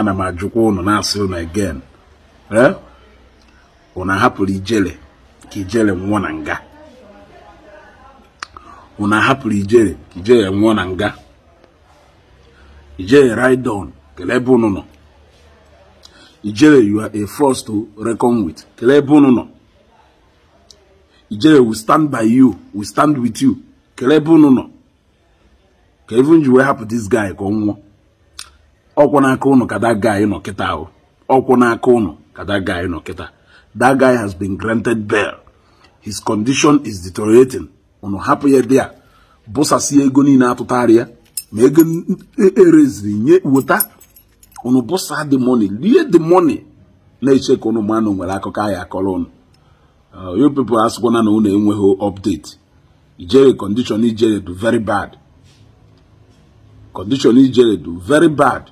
ana m ajụkwa ụnụ na-asị ụnụ again ee ụnụ ahapụrụ ijele ka ijele nwụọ na nga ụnụ ahapụrụ ijele ka ijele nwụọ na nga ijele raidon kelee ebe ụnụ nọ ijele you are a force to reckon with kelee ebe ụnụ nọ ijele we stand by you we stand with you kelee ebe ụnụ nọ ka even ji wee hapụ this guy ka ọ nwụọ ọkwụ n'aka ụnụ ka that guy nọ kịta ahụ ọkwụ n'aka ụnụ ka that guy nọ kịta that guy has been granted bail his condition is deteriorating ụnụ hapụ ya dịa bụsasie ego niile atụtara ya ma ego ereziri e, nye weta ụnụ bụsa the money lie the money na-eche ka ụnụ manụ nwere akụkọ ahịa akọrọ ụnụ uh, you people asịkwana na ụnụ enweghị update ijere condition ijere do very bad condition ijere do very bad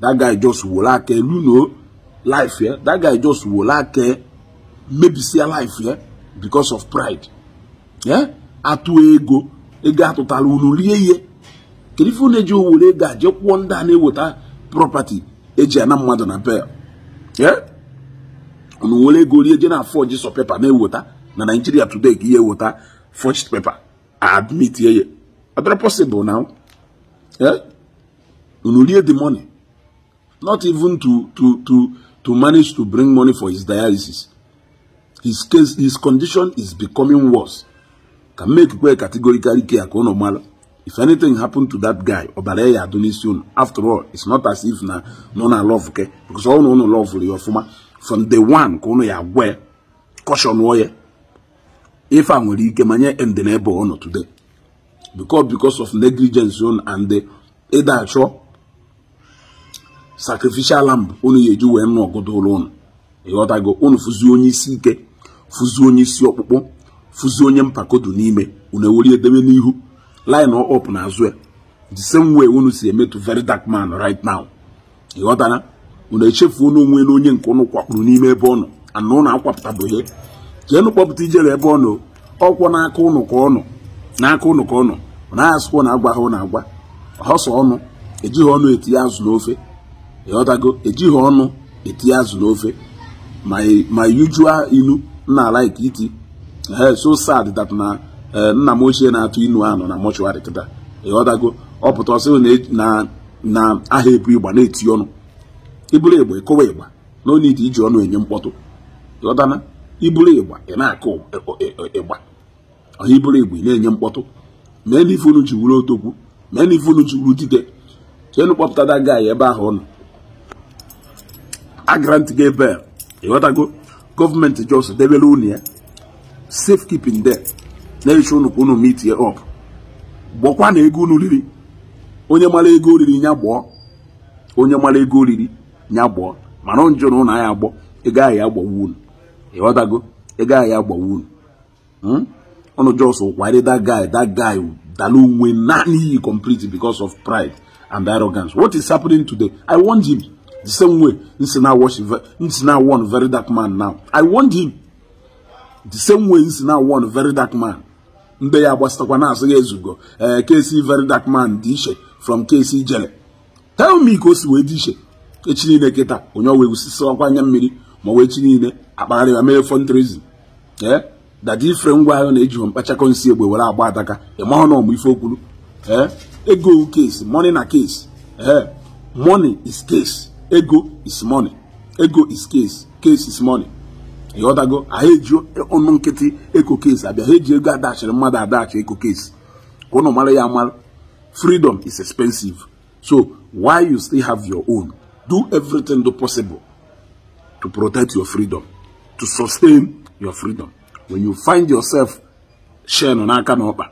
that guy just were like a know life here. That guy just were like a maybe see a life here because of pride. Yeah? Atu ego. Ego atụtara unu rie ihe. Kedu ife na-eji owere ego a jee kwụọ ndị a na-eweta property eji ana mmadụ na bel. Yeah? Unu were ego rie je na forge so paper na-eweta na Nigeria today ka ihe eweta forged paper. Admit ye ye. possible now. Yeah? Unu rie the money. not even to to to to manage to bring money for his dialysis his case his condition is becoming worse can make where categorically care ka unu if anything happened to that guy Obareya ya after all it's not as if na nọ na love okay? because all no no love ya ọfụma from the one ka unu ya where caution ya if I'm nwere ike manye ndị na today because because of negligence unu and either achọ sacrificial lamb unu ya eji wee nụ ọgụdụ ụlọ unu ịghọtago unu fụzi onye isi ike fụzi onye isi ọkpụkpụ fụzi onye mpakodu n'ime unu ewere edebe n'ihu line up na azụ ya the same way unu si emetụ very dark man right now ịghọtara unu echefuo na onwe na onye nke unu kwakpuru n'ime ebe ọ anụ ana ụnụ ihe jeenụ kpọpụta ijere ebe ọ nọ ọkwọ n'aka ụnụ ka ọ nọ n'aka ụnụ ka ọ nọ na na agwa ha na agwa ọsọ ọnụ ejighị ọnụ etinye azụ n'ofe ịghọtago ejighị ọnụ etinye azụ n'ofe ma e, e yujua ilu na alaiki iti so sad that na e, nna m ochie na-atụ inu anụ na mọchụarị kịta ịghọtago ọ pụta ọsị na aha ebu ịgba na-eti ọnụ iburu ịgba ịkụwa ịgba na onye ite iji ọnụ enye mkpọtụ ịghọtana iburu ịgba ị na-akụ ịgba ọha iburu ịgba ị na-enye mkpọtụ mee na ife unu ji wuru otokwu mee na ife unu ji wuru dide so enu kpọpụtada gaị ebe ahụ ọ nọ agrant gị ebe ịghọtago gọọmenti jos debere unu ya safekeeping de na-ehicha unu ka unu mitie up gbọkwa na ego unu riri onye mara ego oriri nya onye mara ego oriri nya gbọọ mana njụ na ụnụ anya agbọ ego ahụ ya agbawa unu ịghọtago ego ahụ ya agbawa unu unu jos that guy that guy dalu win n'iyi complete because of pride and arrogance what is happening today i want him The same way, it's now one very dark man now. I want him. The same way, it's now one very dark man. Ndị ya gbasatakwa na-asị ya ezugo eh, KC very dark man dị from KC jele tell me ka o si wee dị iche echi niile kịta onye ọwa egwusisi ọkwa anya mmiri ma wee chi niile akpagharị ya mere fundraising ee eh? dadi ifere ngwa ahụ na-ejighọ mkpachakọ nsị egbe were agba adaka ịmahụ e na ọmụ ife okwuru eh? ego u case money na case ee money is case ego is money ego is case case is money ịghọtago anyị eji ọnụ nkịtị eko case abịa ha eji ego adachiri mmadụ adachi eko case ka ụnụ mara ya amara freedom is expensive so why you still have your own do everything do possible to protect your freedom to sustain your freedom when you find yourself sharing n'aka n'ọkpa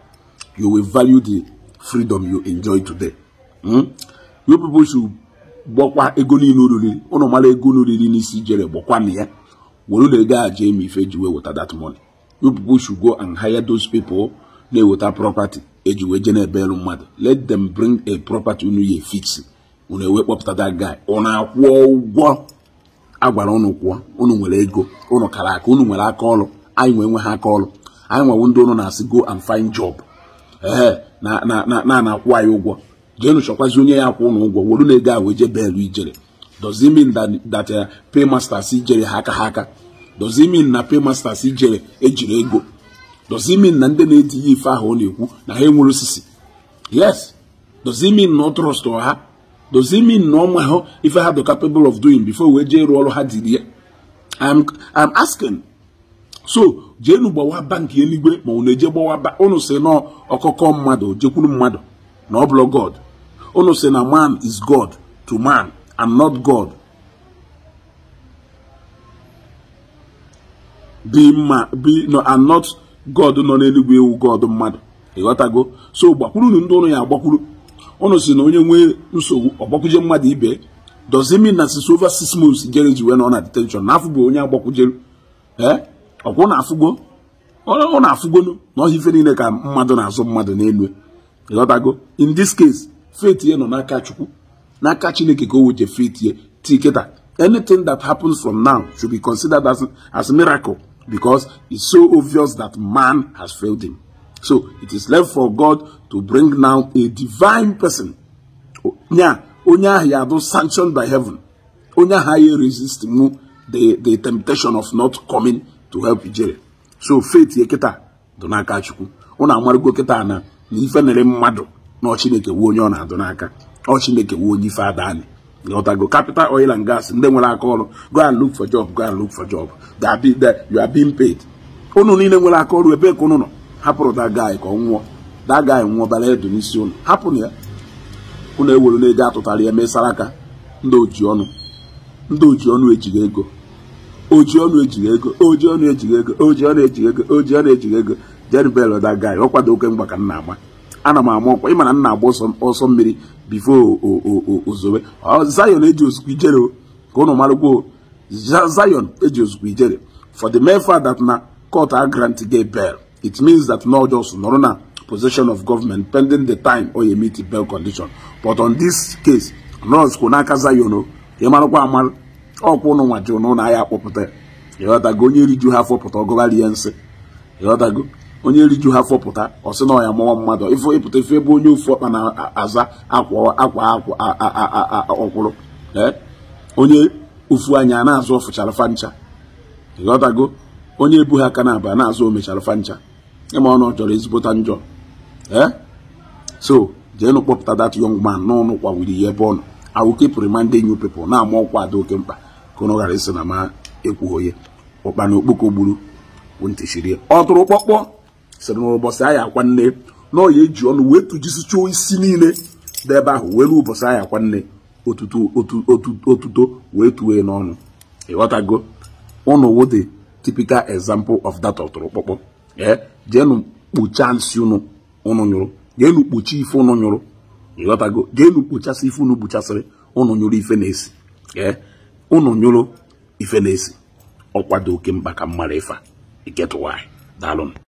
you will value the freedom you enjoy today hmm? you people should gbọkwa ego niile oriri ụnụ mara ego unu riri n'isi jere gbọkwana ya were ụlọ ego a jee ife eji wee weta that money you go and hire those people na-eweta property eji wee je na elu mmadụ let them bring a property unu ya fix unu ewe kpọpụta dat guy ụnụ akwụọ ụgwọ agwara ụnụ kwụọ ụnụ nwere ego ụnụ kara aka ụnụ nwere aka ọrụ anyị nwee nwe ha aka ọrụ anyị nwewo ndị ụnụ na-asị go and find job ee na-akwụ anyị ụgwọ jeenu chọkwazi onye ya kwụ ụnụ ụgwọ wolu na ego ahụ eje beelu ijere dozimin data that uh, paymasters ijere ha aka ha aka dozi min na paymasters ijere ejiri ego dozimin na ndị na-etinye ife ahụ ọ na-ekwu na ha enwere osisi yes dozimin na ọ trọstụ ha dozi na ọma ha ife ha dị capable of doing before wee jee rụọ ọrụ ha diri ya am asking so jeenu gbawa banki eluigwe ma unu eje gbawa unu si nọọ ọkụkọ mmadụ jekwuru mmadụ na ọ bụla god unu si na man is god to man and not god dị mma bi no and not god nọ n'eluigwe ewu god mmadụ ịghọtago so gbakwurunu ndị ụnụ ya agbakwuru ụnụ si na onye nwee nsogbu ọgbakwuje mmadụ ibe does it mean that it's over six months jere ji wee nọ na detention na afụgo onye agbakwujeru ee ọkwụ na afụgo ọ na afụgonu na ọhịa ife niile ka mmadụ na-azụ mmadụ n'elu ịghọtago in this case faith ya nọ n'aka chukwu n'aka chineke ka o weche faith ya tiketa anything that happens from now should be considered as, as miracle because it's so obvious that man has failed him so it is left for god to bring now a divine person nya onye ahụ ya bụ sanctioned by heaven onye ahụ ya resist mu the the temptation of not coming to help ijere so faith ya kịta dị n'aka chukwu ụnụ amarago kịta na na ife nere mmadụ na ọchineke wuo onye ọ na-adụ n'aka ọchineke wuo onye ife ada anyị ghọtago capital oil and gas ndị nwere aka ọrụ go and look for job go and look for job you are being paid unu niile nwere aka ọrụ ebee ka unu nọ hapụrụ da guy ka ọ nwụọ da guy nwụọ bara edu n'isi unu hapụrụ ya unu ewere na-eji atụtara ya mesara aka ndị ọnụ ndị oji ọnụ ejighị ego oji ọnụ ejighị ego oji ọnụ ejighị ego oji ọnụ ejighị ego oji ọnụ ejighị ego jeribel that guy ọ kwado mgba ka m na-agba ana m ama ọkwa ịmana nna agba ọsọ mmiri bifo ozowe zion eji ozugbo ijere ka ụnụ marụgwo zion eji ozugbo ijere for the mere fact that na court a grant gay bail it means that no just nọrọ na possession of government pending the time or you bail condition but on this case nurse kwụ n'aka zion o ka ịmarụkwa amarụ ọkwụ ụnụ nwa ji ụnụ na ya akpọpụta ya ịghọtago onye riju ha afọ pụta ọgọgharị ya nsị onye riju ha fọpụta ọ sị na ya mụwa mmadụ ịfụ ịpụta ife ebe onye ofu ọkpa na-aza akwa akwa ọkwụrụ onye ofu anya na-azụ ọfụchara fancha ịghọtago onye ebu ha aka na aba na-azụ omechara fancha ịma ọnụ ọ chọrọ ezigbota njọ so jeenụ kpọpụta dat young man n'ọnụ kwa wiri ya ebe ọ nọ I will keep reminding na-ama ọkwa ada oke mkpa ka ọnụ ghara isi na ma ekwughị onye ụkpa na okpoko gburu ntị ọ tụrụ kpọkpọ sịrị na anyị akwa nne ya eji ọnụ wee tụjisichuo isi niile dị ebe ahụ were ụbọchị anyị akwa nne otuto wee tuwe n'ọnụ ịghọtago ụnụ wụdị typical example of that ọtụrụkpọkpọ ee jeenụ kpuchaa nsị ụnụ ụnụ nyụrụ jeenụ ife ụnụ nyụrụ ịghọtago jeenụ kpuchasị ife ụnụ kpuchasịrị ụnụ nyụrụ ife na-esi ee ụnụ nyụrụ ife na-esi ọkwado oke mkpa ka mmara ịfa iketụwa anyị daalụ